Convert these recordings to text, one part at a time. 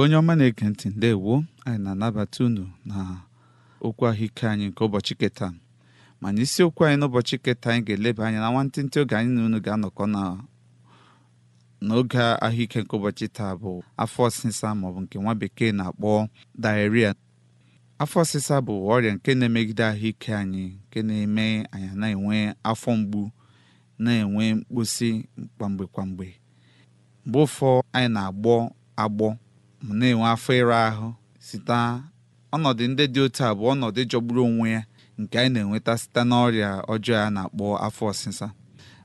igbo onye ọma na-ege ntị ndewo anyị na-anabata unu na okwu ahụike anyị nke ụbọchị keta mana isiokwu anyị n'ụbọchị keta anyị ga-eleba anya na nwantịntị oge anyị na unu ga-anọkọ n'oge ahụike nke ụbọchị taa bụ afọ ọsịsa maọbụ nke nwa bekee na-akpọ diarrhea afọ ọsịsa bụ ọrịa nke na-emegide ahụike anyị nke na-eme anyị na-enwe afọ mgbu na-enwe mkposi kwamgbe kwamgbe mgbe ụfọ anyị na-agbọ agbọ m na-enwe afọ ịra ahụ site ọnọdụ ndị dị otu a bụ ọnọdụ jọgburu onwe ya nke anyị na-enweta site n'ọrịa ọjọọ a na-akpọ afọ ọsịsa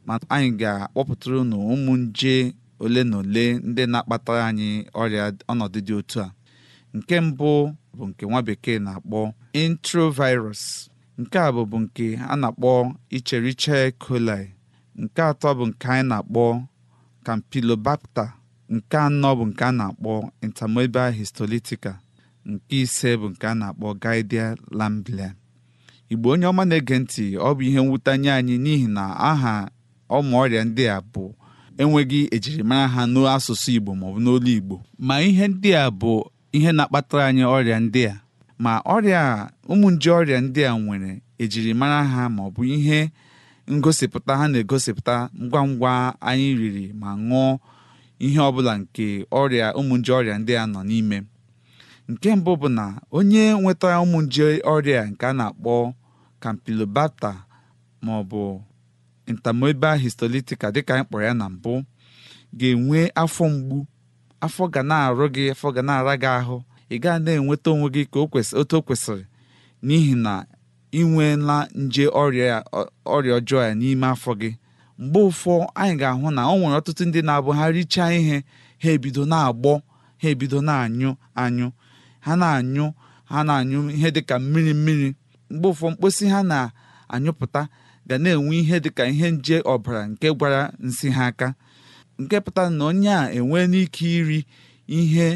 ma anyị ga-akpọpụtara unu ụmụ nje ole na ole ndị na-akpata anyị ọrịa ọnọdụ dị otu a nke mbụ bụ nke nwa bekee na-akpọ introvirus nke a bụbu nke a na-akpọ icheriche coli nke atọ bụ nke anyị na-akpọ campylobacter nke anọ bụ nke a na-akpọ intermobile histolytica nke ise bụ nke a na-akpọ gidia lamblia igbo onye ọma na-ege ntị ọ bụ ihe mwute nye anyị n'ihi na aha ọmụ ọrịa ndị a bụ enweghị ejirimara ha n'asụsụ igbo maọbụ n'olu igbo ma ihe ndị a bụ ihe na-akpatara anyị ọrịa ndị a ma ọrịa ụmụ nje ọrịa ndị a nwere ejirimara ha maọbụ ihe ngosipụta ha na-egosipụta ngwa ngwa anyị riri ma ṅụọ ihe ọbụla nke ọrịa ụmụ nje ọrịa ndị a nọ n'ime nke mbụ bụ na onye nwetara ụmụ nje ọrịa nke a na-akpọ Kampilobata ma ọ bụ dịka anyị kpọrọ ya na mbụ ga-enwe afọ mgbu afọ ga na-arụ gị afọ ga na-ara gị ahụ ị gaa na-enweta onwe gị ka otu o kwesịrị n'ihi na ị nweela nje ọrịa ọjọọ ya n'ime afọ gị mgbe ụfọ anyị ga-ahụ na ọ nwere ọtụtụ ndị na-abụ ha richaa ihe ha ebido na-agbọ ha ebido na-anyụ anyụ ha na-anyụ ha na-anyụ ihe dịka mmiri mmiri mgbe ụfọ mkposi ha na-anyụpụta ga na-enwe ihe dịka ihe nje ọbara nke gwara nsị ha aka nke pụtara na onye a enwee n'ike iri ihe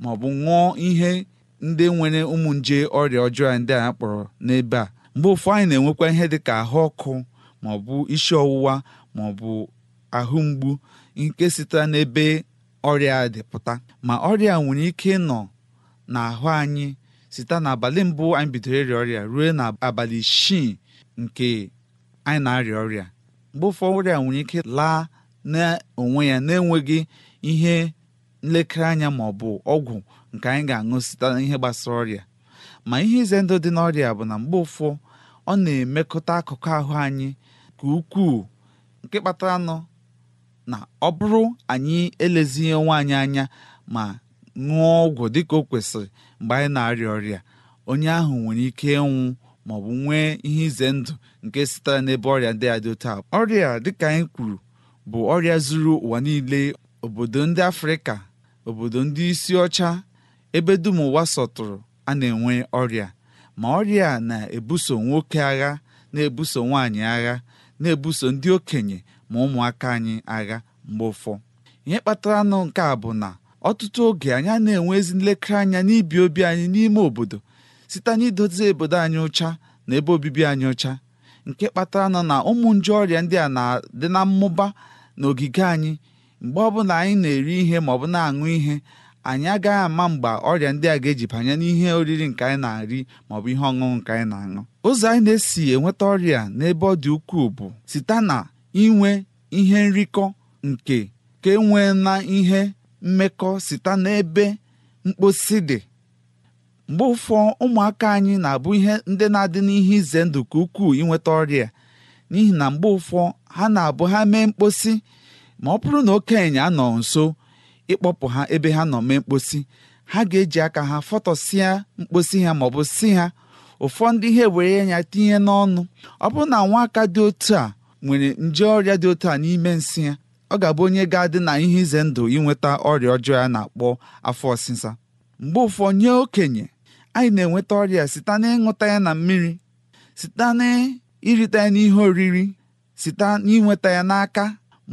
maọbụ ṅụọ ihe ndị nwere ụmụ nje ọrịa ọjọọ ndị a kpọrọ n'ebe a mgbe ụfọ anyị na-enwekwa ihe dịka ahụ ọkụ maọbụ isi ọwụwa maọbụ ahụ mgbu nke sitere n'ebe ọrịa dịpụta ma ọrịa nwere ike nọ n'ahụ anyị site n'abalị mbụ anyị bidoro ịrịa ọrịa ruo n'abalị isii nke anyị na-arịa ọrịa mgbe ụfọdụ ọrịa nwere ike laa n'onwe ya na-enweghị ihe nlekere anya ma ọ bụ ọgwụ nke anyị ga-aṅụ site n'ihe gbasara ọrịa ma ihe ize ndụ dị n'ọrịa bụ na mgbe ụfọ ọ na-emekọta akụkụ ahụ anyị nke ukwuu nke kpatara nọ na ọ bụrụ anyị elezighị nwaanyị anya ma ṅụọ ọgwụ dịka o kwesịrị mgbe anyị na-arịa ọrịa onye ahụ nwere ike ịnwụ ma ọ bụ nwee ihe ize ndụ nke sitere n'ebe ọrịa ndị a otu a ọrịa dịka anyị kwuru bụ ọrịa zuru ụwa niile obodo ndị afrịka obodo ndị isi ọcha ebe dum ụwa sọtụrụ a na-enwe ọrịa ma ọrịa na-ebuso nwoke agha na-ebuso nwaanyị agha na-ebuso ndị okenye ma ụmụaka anyị agha mgbe ụfọ ihe kpatara nụ nke a bụ na ọtụtụ oge anyị na-enwe ezi nlekere anya n'ibi obi anyị n'ime obodo site n'idozi obodo anyị ụcha na ebe obibi anyị ụcha nke kpatara nọ na ụmụ nje ọrịa ndị a na-adị na mmụba n'ogige anyị mgbe ọbụla anyị na-eri ihe ma ọ bụ na-aṅụ ihe anyị agaghị ama mgbe ọrịa ndị a ga-eji banye n'ihe oriri nke anyị na arị maọbụ ihe ọṅụṅụ nke anyị na-aṅụ ụzọ anyị na-esi enweta ọrịa n'ebe ọ dị ukwuu bụ site na inwe ihe nrikọ nke ka enwee na ihe mmekọ site n'ebe mkposi dị mgbe ụfọ ụmụaka anyị na-abụ ihe ndị na-adị n'ihe ize ndụ ka ukwuu inweta ọrịa n'ihi na mgbe ụfọ ha na-abụ ha mee mkposi ma ọ bụrụ na okenye anọ nso ịkpọpụ ha ebe ha nọ mee mkposi ha ga-eji aka ha fọtọsịa mkposi ha maọbụ si ha ụfọdụ ihe were ya tinye n'ọnụ ọ bụrụ na nwa aka dị otu a nwere nje ọrịa dị otu a n'ime nsị ya ọ ga-abụ onye ga-adị na ihe ize ndụ inweta ọrịa ọjọọ ya na-akpọ afọ ọsịsa mgbe ụfọdụ nye okenye anyị na-enweta ọrịa site n'ịṅụta ya na mmiri site n'irita ya n'ihe oriri site n'inweta ya n'aka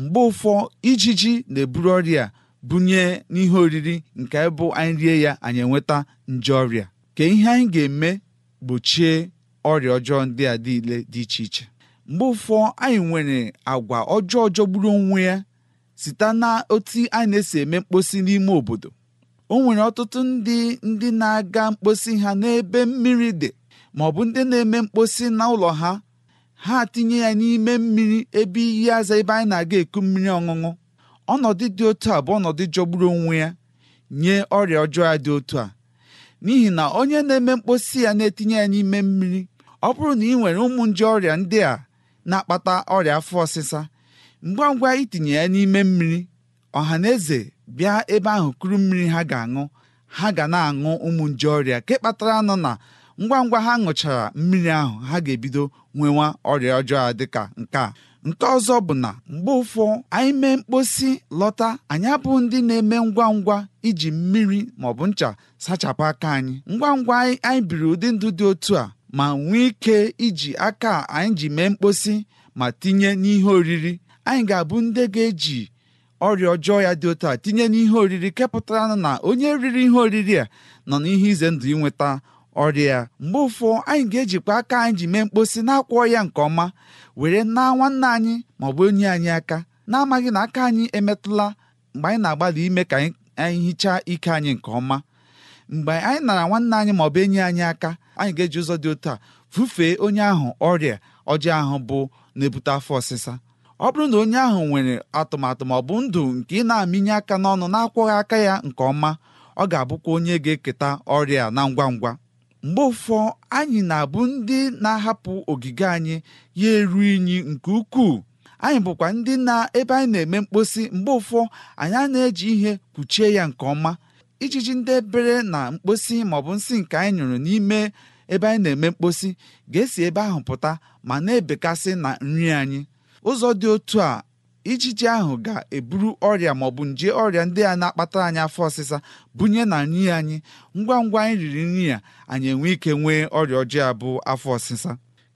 mgbe ụfọ ijiji na-eburu ọrịa bunye n'ihe oriri nke bụ anyị rie ya anyị enweta nje ọrịa ka ihe anyị ga-eme gbochie ọrịa ọjọọ ndị a niile dị iche iche mgbe ụfọ anyị nwere agwa ọjọọ jọgburu onwe ya site na otu anyị na-esi eme mkposi n'ime obodo o nwere ọtụtụ ndị ndị na-aga mkposi ha n'ebe mmiri dị ma ọ bụ ndị na-eme mkposi na ụlọ ha ha tinye ya n'ime mmiri ebe iyi aza ebe anyị na-aga eku mmiri ọṅụṅụ ọnọdụ dị otu a bụ ọnọdụ jọgburu onwe ya nye ọrịa ọjọọ dị otu a n'ihi na onye na-eme mkposi ya na-etinye ya n'ime mmiri ọ bụrụ na ị nwere ụmụ nje ọrịa ndị a na-akpata ọrịa afọ ọsịsa ngwa ngwa itinye ya n'ime mmiri ọha na eze bịa ebe ahụ kuru mmiri ha ga-aṅụ ha ga na-aṅụ ụmụ nje ọrịa nke kpatara nọ na ngwa ngwa ha ṅụchara mmiri ahụ ha ga-ebido nwewa ọrịa ọjọọ dịka nke a nke ọzọ bụ na mgbe ụfọ anyị mee mkposi lọta anyị abụ ndị na-eme ngwa ngwa iji mmiri bụ ncha sachapụ aka anyị ngwa ngwa anyị biri ụdị ndụ dị otu a ma nwee ike iji aka anyị ji mee mkposi ma tinye n'ihe oriri anyị ga-abụ ndị ga-eji ọrịa ọjọọ ya dị otu a tinye n'ihe oriri kepụtara na onye riri ihe oriri a nọ n'ihe ize ndụ ịnweta Ọrịa mgbe ụfọ anyị ga-ejikwa aka anyị ji mee mkposi na-akwọ ya nke ọma were naa nwanne anyị ma ọ bụ onye anyị aka na-amaghị na aka anyị emetụla mgbe anyị na-agbalị ime ka anyị hichaa ike anyị nke ọma mgbe anyị nara nwanne anyị ma enyi anyị aka anyị ga-eji ụzọ dị otu a fufee onye ahụ ọrịa ọjọọ ahụ bụ na-ebute afọ ọsịsa ọ bụrụ na onye ahụ nwere atụmatụ maọbụ bụ ndụ nke ị na-amịnye aka n'ọnụ na-akwọghị aka ya nke ọma ọ ga-abụkwa onye ga-eketa ọrịa na ngwa ngwa mgbe ụfọ anyị na-abụ ndị na-ahapụ ogige anyị ya eru unyi nke ukwuu anyị bụkwa ndị na ebe anyị na-eme mkposi mgbe ụfọ anyị na-eji ihe kpuchie ya nke ọma ijiji ndị ebere na mkposi maọbụ nsị nke anyị nyụrụ n'ime ebe anyị na-eme mkposi ga-esi ebe ahụ pụta ma na-ebekasị na nri anyị ụzọ dị otu a ijiji ahụ ga-eburu ọrịa bụ nje ọrịa ndị a na akpata anyị afọ ọsịsa bunye na nri anyị ngwa ngwa anyị riri nri a anyị enwe ike nwee ọrịa ọjọọ abụ afọ ọsịsa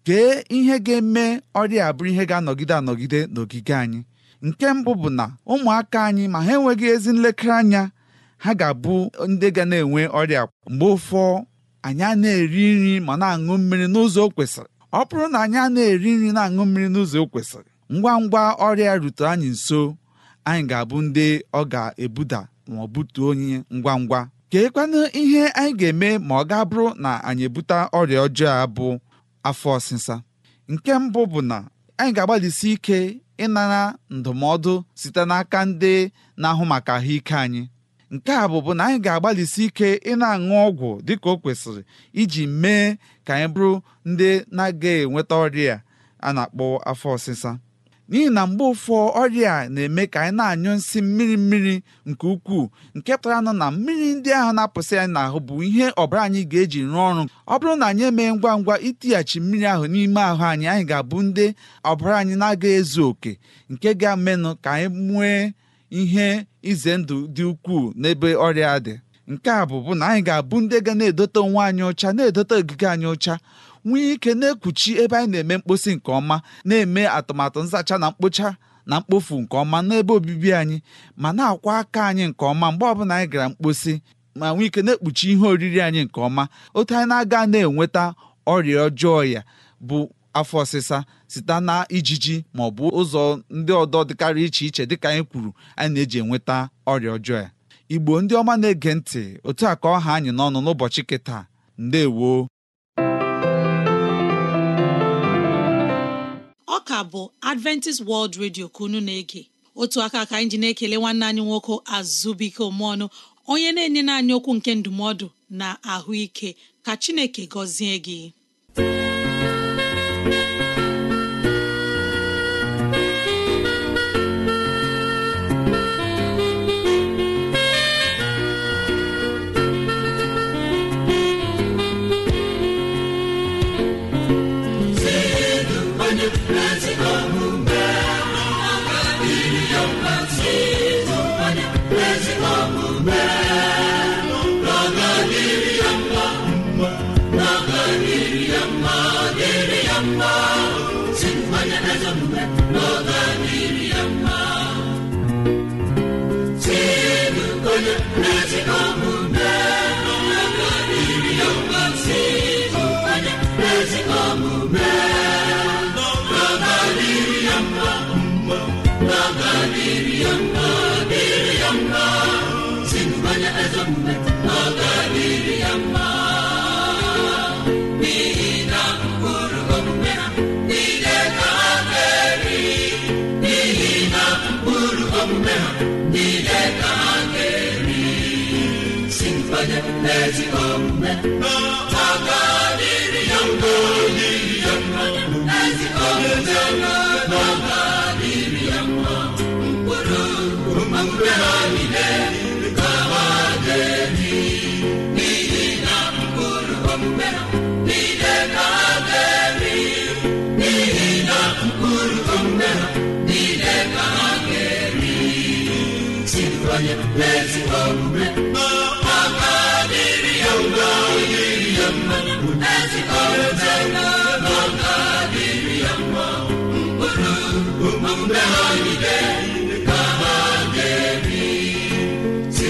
kee ihe ga-eme ọrịa a bụrụ ihe ga-anọgide anọgide n'ogige anyị nke mbụ bụ na ụmụaka anyị ma ha enweghị ezi nlekere anya ha ga-abụ ndị ga na-enwe ọrịa mgbe ụfọ anyị na-eri nri ma na-aṅụ mmiri n'ụzọ o kwesịrị ọ bụrụ na anyị na-eri nri na-aṅụ mmiri n'ụzọ o kwesịrị ngwa ngwa ọrịa rute anyị nso anyị ga-abụ ndị ọ ga-ebuda ma ọ butuo onye ngwa ngwa keekwanụ ihe anyị ga-eme ma ọ ga-abụrụ na anyị ebute ọrịa ọjọọ a bụ afọ ọsịsa nke mbụ bụ na anyị ga-agbalịsi ike ịnara ndụmọdụ site n'aka ndị na-ahụ maka ahụike anyị nke a bụbụ na anyị ga-agbalịsi ike ịna aṅụ ọgwụ dịka o kwesịrị iji mee ka anyị bụrụ ndị na aga enweta ọrịa a na-akpọ afọ ọsịsa n'ihi na mgbe ụfọ ọrịa a na-eme ka anyị na-anyụ nsị mmiri mmiri nke ukwuu nke pụtara nụ na mmiri ndị ahụ na-apụsị anyị n'ahụ bụ ihe ọbara anyị ga-eji rụọ ọrụ ọ bụrụ na anyị emee ngwa ngwa itighachi mmiri ahụ n'ime ahụ anyị anyị ga-abụ ndị ọbara anyị na aga ezu oke nke ga-amenụ ka anyị nwee ihe ize ndụ dị ukwuu n'ebe ọrịa dị nke a bụ bụ na anyị ga-abụ ndị ga na-edote onwe anyị ọcha na-edote ogige anyị ọcha nwee ike na-ekpuchi ebe anyị na-eme mkposi nke ọma na-eme atụmatụ nzacha na mkpocha na mkpofu nke ọma n'ebe obibi anyị ma na-akwa aka anyị nke ọma mgbe ọbụla anyị gara mkposi ma nwee ike na-ekpuchi ihe oriri anyị nke ọma otu anyị na-aga na-enweta ọrịa ọjọọ ya bụ afọ ọsịsa site na ijiji ma ọ bụ ụzọ ndị ọdọ dịkarị iche iche dịka anyị kwuru anyị na-eji enweta ọrịa ọjọọ ya igbo ndị ọma na-ege ntị otu a ka ọha anyị n'ọnụ n'ụbọchị kịta ndewo ka bụ Adventist World Radio ka unu na-ege otu aka ka anyị ji na-ekele nwanne anyị nwoke azụbụike omeọnụ onye na-enye anyị okwu nke ndụmọdụ na ahụike ka Chineke gọzie gị Lord, n'iri. ezi omume ka ha ga-eri si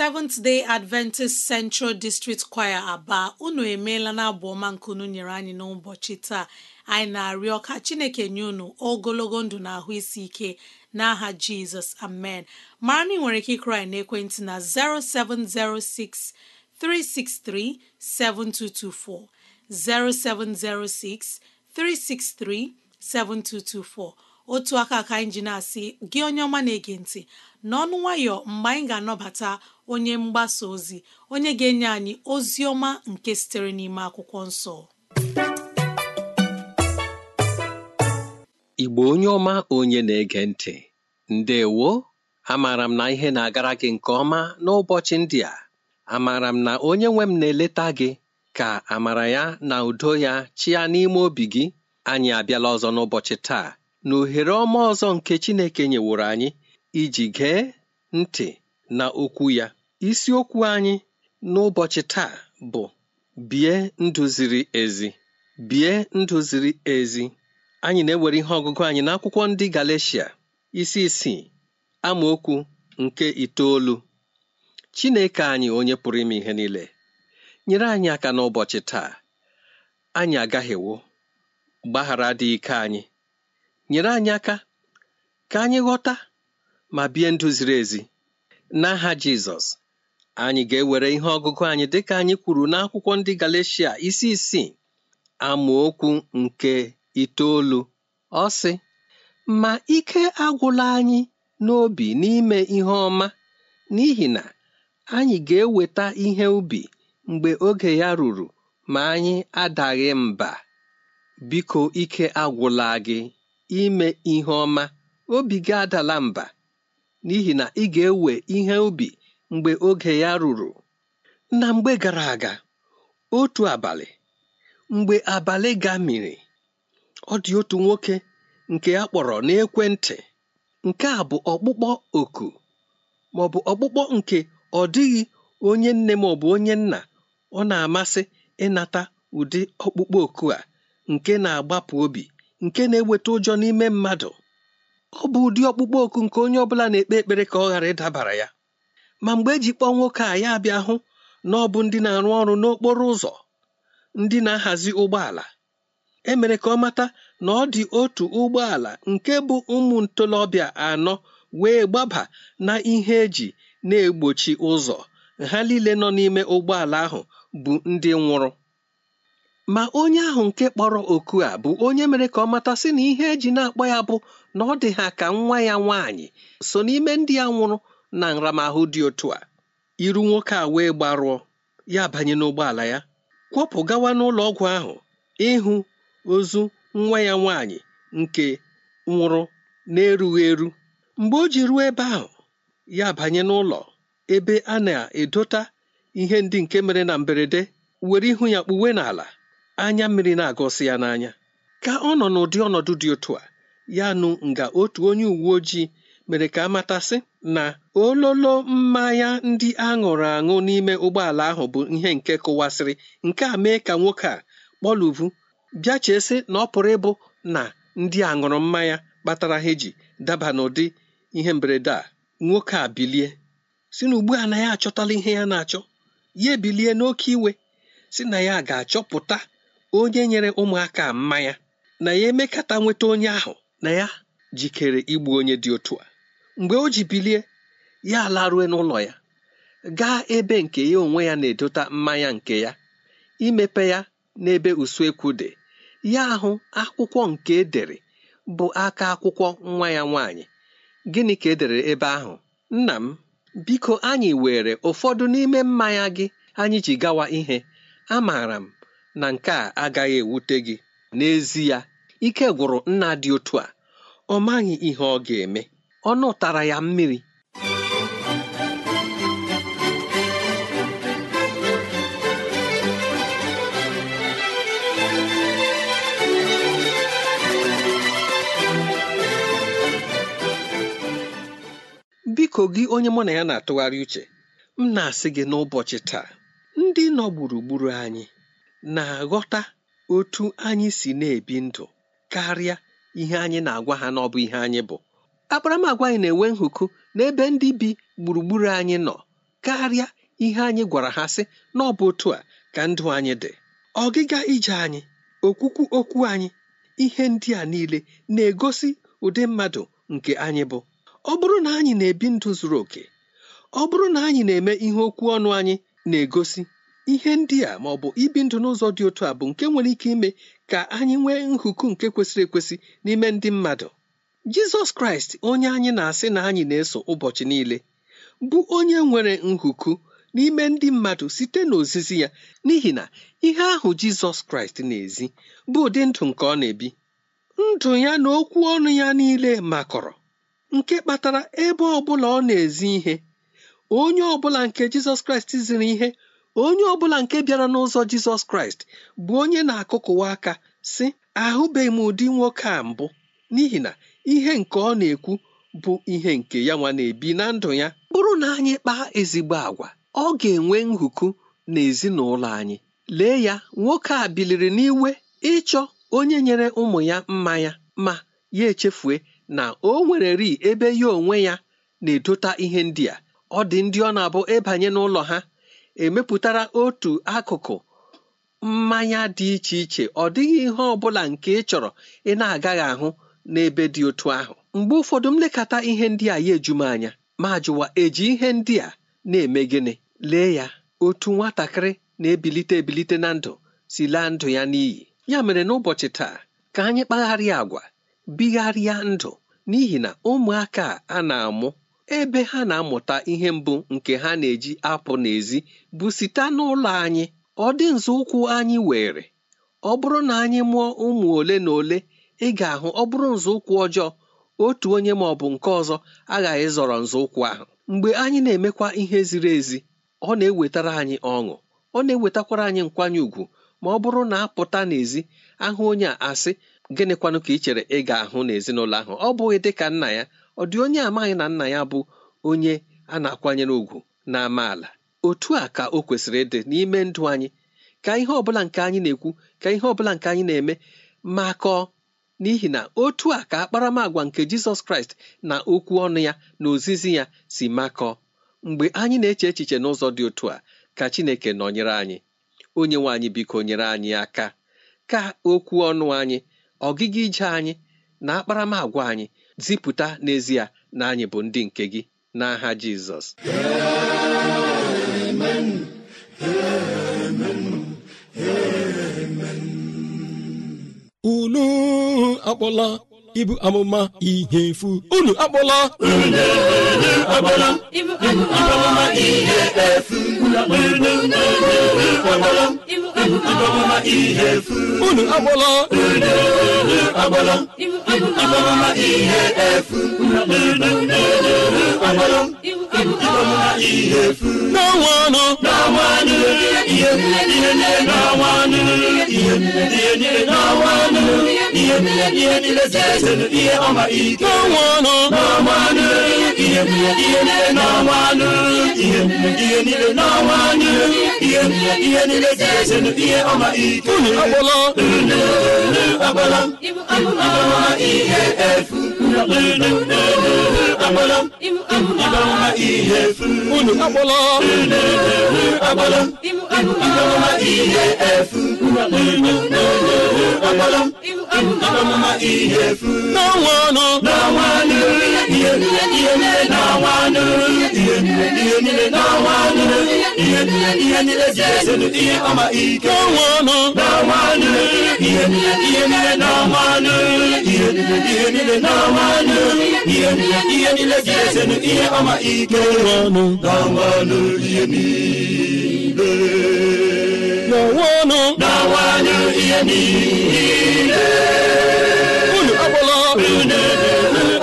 Seventh Day Adventist Central District Choir Aba unu emeela na abụ ọma nkunu nyere anyị n'ụbọchị taa anyị na-arịọ ka Chineke nye unu ogologo ndụ na ahụ isi ike n'aha Jizọs amen mara na ị nwere ike ịkụrụ n'ekwentị na 0706 363 7224 0706 363 7224 otu aka aka anyị ji na-asị gị onye ọma na-ege ntị n'ọnụ nwayọ mgbe anyị ga-anọbata onye mgbasa ozi onye ga-enye anyị ozi ọma nke sitere n'ime akwụkwọ nsọ igbo onye ọma onye na-ege ntị ndewo amaara m na ihe na-agara gị nke ọma n'ụbọchị ndị a amaara m na onye nwe m na-eleta gị ka amara ya na udo ya chịa n'ime obi gị anyị abịala ọzọ n'ụbọchị taa na ohere ọma ọzọ nke Chineke nyeworo anyị iji gee ntị na okwu ya isiokwu anyị n'ụbọchị taa bụ bie ndụ ziri ezi bie ndụ ziri ezi anyị na-ewere ihe ọgụgụ anyị n'akwụkwọ ndị Galeshia isi isii amaokwu nke itoolu Chineke anyị onye pụrụ ime ihe niile nyere anyị aka n'ụbọchị taa anyị agaghewo gbaghara dị ike anyị nyere anyị aka ka anyị ghọta ma bie ndụ ziri ezi n'aha Jizọs anyị ga-ewere ihe ọgụgụ anyị dịka anyị kwuru n'akwụkwọ ndị Galeshia isi isii amaokwu nke itoolu ọ sị ma ike agwụla anyị n'obi n'ime ihe ọma n'ihi na anyị ga-eweta ihe ubi mgbe oge ya ruru ma anyị adaghị mba biko ike agwụla gị ime ihe ọma obi gị adala mba n'ihi na ị ga-ewe ihe ubi mgbe oge ya ruru na mgbe gara aga otu abalị mgbe abalị ga gamiri ọ dị otu nwoke nke a kpọrọ n'ekwentị nke a bụ ọkpụkpọ oku ma ọ bụ ọkpụkpọ nke ọ dịghị onye nne ma ọ bụ onye nna ọ na-amasị ịnata ụdị ọkpụkpọ oku a nke na-agbapụ obi nke na-eweta ụjọ n'ime mmadụ ọ bụ ụdị ọkpụkpọ oku nke onye ọbụla na-ekpe ekpere ka ọ ghara ịdabara ya ma mgbe eji kpọọ nwoke a ya bịa hụ na ọ bụ ndị na-arụ ọrụ n'okporo ụzọ ndị na-ahazi ụgbọala emere ka ọ mata na ọ dị otu ụgbọala nke bụ ụmụ ntolobịa anọ wee gbaba na ihe eji na-egbochi ụzọ ha niile nọ n'ime ụgbọala ahụ bụ ndị nwụrụ ma onye ahụ nke kpọrọ oku a bụ onye mere ka ọ matasị sị na ihe eji na-akpọ ya bụ na ọ dị ha ka nwa ya nwaanyị so n'ime ndị ya nwụrụ na nramahụ dị otu a iru nwoke a wee gbarụọ ya banye n'ụgbọala ya kwọpụ gawa n'ụlọ ọgwụ ahụ ịhụ ozu nwa ya nwaanyị nke nwụrụ na-erughị eru mgbe o ji ruo ebe ahụ ya banye n'ụlọ ebe a na-edota ihe ndị nke mere na mberede were ihu ya kpuwe n'ala anya mmiri na agosi ya n'anya ka ọ nọ n'ụdị ọnọdụ dị otu a ya nụ nga otu onye uwe ojii mere ka amatasị na ololo mmanya ndị aṅụrụ aṅụ n'ime ụgbọala ahụ bụ ihe nke kụwasịrị nke a mee ka nwoke a kpọluvu bịa chesị na ọ pụrụ ịbụ na ndị aṅụrụ mmanya kpatara ha eji daba n'ụdị ihe mberede a nwoke a bilie si na ugbu a na ya achọtala ihe ya na-achọ ya ebilie n'oke iwe si na ya ga-achọpụta onye nyere ụmụaka mmanya na ya emekata nweta onye ahụ na ya jikere igbu onye dị otu a mgbe o ji bilie ya laruo n'ụlọ ya gaa ebe nke ya onwe ya na-edota mmanya nke ya imepe ya n'ebe usuekwu dị ya ahụ akwụkwọ nke edere bụ aka akwụkwọ nwa ya nwaanyị gịnị ka edere ebe ahụ nna m biko anyị were ụfọdụ n'ime mmanya gị anyị ji gawa ihe amaara m na nke a agaghị ewute gị n'ezi n'ezie ike gwụrụ nna dị otu a ọ maghị ihe ọ ga-eme ọnụ tara ya mmiri biko gị onye mụ na ya na-atụgharị uche m na-asị gị n'ụbọchị taa ndị nọ gburugburu anyị na-aghọta otu anyị si na-ebi ndụ karịa ihe anyị na-agwa ha n'ọbụ ihe anyị bụ akparamagwa anyị na-enwe nhụkụ n'ebe ndị bi gburugburu anyị nọ karịa ihe anyị gwara ha sị na ọ otu a ka ndụ anyị dị ọgịga ije anyị okwukwu okwu anyị ihe ndị a niile na-egosi ụdị mmadụ nke anyị bụ ọ bụrụ na anyị na-ebi ndụ zuru oke ọ bụrụ na anyị na-eme ihe okwu ọnụ anyị na-egosi ihe ndị a ma ọ bụ ibi ndụ n'ụzọ dị otu a bụ nke nwere ike ime ka anyị nwee nhụku nke kwesịrị ekwesị n'ime ndị mmadụ jizọs kraịst onye anyị na-asị na anyị na-eso ụbọchị niile bụ onye nwere nhụku n'ime ndị mmadụ site n'ozizi ya n'ihi na ihe ahụ jizọs kraịst na-ezi bụ ụdị ndụ nke ọ na-ebi ndụ ya na okwu ọnụ ya niile makọrọ nke kpatara ebe ọ bụla ọ na-ezi ihe onye ọ bụla nke jizọs kraịst ziri ihe onye ọ bụla nke bịara n'ụzọ jizọs kraịst bụ onye na-akụkụwa aka sị ahụbeghị m ụdị nwoke a mbụ n'ihi na ihe nke ọ na-ekwu bụ ihe nke ya nwa na-ebi na ndụ ya bụrụ na anyị kpaa ezigbo agwa ọ ga-enwe nhụkụ na ezinụlọ anyị lee ya nwoke a biliri n'iwe ịchọ onye nyere ụmụ ya mmanya ma ya echefue na o nwere ri ebe ya onwe ya na-edota ihe ndị a ọ dị ndị ọ na-abụ ịbanye n'ụlọ ha emepụtara otu akụkụ mmanya dị iche iche ọ dịghị ihe ọbụla nke ị chọrọ ị na-agaghị ahụ n'ebe dị otu ahụ mgbe ụfọdụ m lekata ihe ndị a ya eju anya ma jụwa eji ihe ndị a na-eme gịnị lee ya otu nwatakịrị na-ebilite ebilite na ndụ si laa ndụ ya n'iyi ya mere n'ụbọchị taa ka anyị kpagharịa agwa bigharịa ndụ n'ihi na ụmụaka a na-amụ ebe ha na-amụta ihe mbụ nke ha na-eji apụ n'ezi bụ site n'ụlọ anyị ọ dị nzọụkwụ anyị were ọ bụrụ na anyị mụọ ụmụ ole na ole ị ga-ahụ ọ bụrụ nzọụkwụ ọjọọ otu onye ma ọ bụ nke ọzọ aghaghị zọrọ nzọụkwụ ahụ mgbe anyị na-emekwa ihe ziri ezi ọ na-ewetara anyị ọṅụ ọ na-ewetakwara anyị nkwanye ùgwù ma ọ bụrụ na apụta n'ezi ahụ onye a asị gịnịkwanụ ka ị chere ị ga-ahụ n'ezinụlọ ahụ ọ bụghị dịka nna ya ọ dị onye amaghị na nna ya bụ onye a na-akwanyere ùgwù na amaala otu a ka o kwesịrị ịdị n'ime ndụ anyị ka ihe ọbụla nke anyị na-ekwu ka ihe ọbụla nke anyị na-eme makọọ n'ihi na otu a ka akparamagwa nke Jizọs Kraịst na okwu ọnụ ya na ozizi ya si makọọ mgbe anyị na-eche echiche n'ụzọ dị otu a ka Chineke nọnyere anyị onye nwe anyị biko nyere anyị aka ka okwu ọnụ anyị ọgịga ije anyị na akparamagwa anyị zipụta n'ezie na anyị bụ ndị nke gị n'aha Jizọs unu akpọla ibu amụma ihe efu unu akpọla unu akpọla ihe efu n'ọnwanụ unu agbala agbala ihe efu unu akpọla ihe efu n'ọnwa ọnụ ihe niile n'ọnwa niile ihe niile ihe niile ji ihe ọma ike n'ọnwa niile ihe niile ihe niile n'ọnwa niile ihe niile ihe niile n'ọnwa niile ihe niile ihe niile ji ihe ọma ike n'ọnwa niile ihe niile n'ọnwa niile ihe niile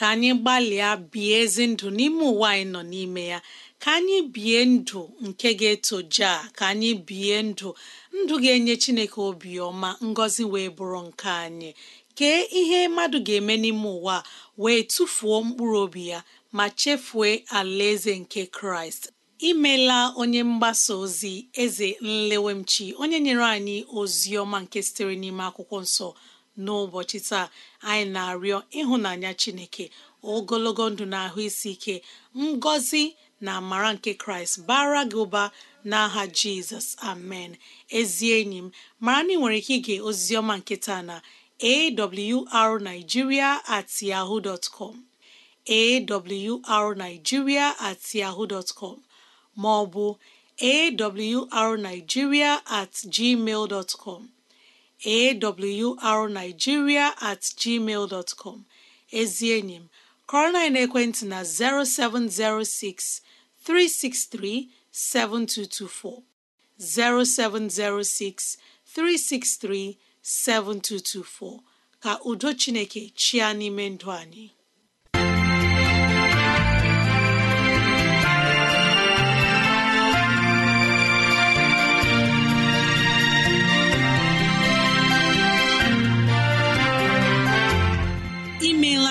ka anyị gbalịa bie ezi ndụ n'ime ụwa anyị nọ n'ime ya ka anyị bie ndụ nke ga eto a ka anyị bie ndụ ndụ ga-enye chineke obiọma ngọzi wee bụrụ nke anyị kee ihe mmadụ ga-eme n'ime ụwa wee tụfuo mkpụrụ obi ya ma chefue alaeze nke kraịst imela onye mgbasa ozi eze nlewemchi onye nyere anyị ozi ọma nke sitere n'ime akwụkwọ nsọ n'ụbọchị taa anyị na-arịọ ịhụnanya chineke ogologo ndụ na ahụ isi ike ngọzi na amara nke kraịst bara gị ụba n'aha jizọs amen ezi enyi m mara na ị nwere ike ige oziziọma nke na awrnigeria at yahoo dot com at yahoo dot com ma ọ bụ awrnigeria at gmail dot awrnigeria at gmail dot com ezi enyi m kọrọ na ekwentị na 0706 363 7224 0706 363 7224 ka udo Chineke chịa n'ime ndụ anyị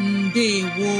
ndewo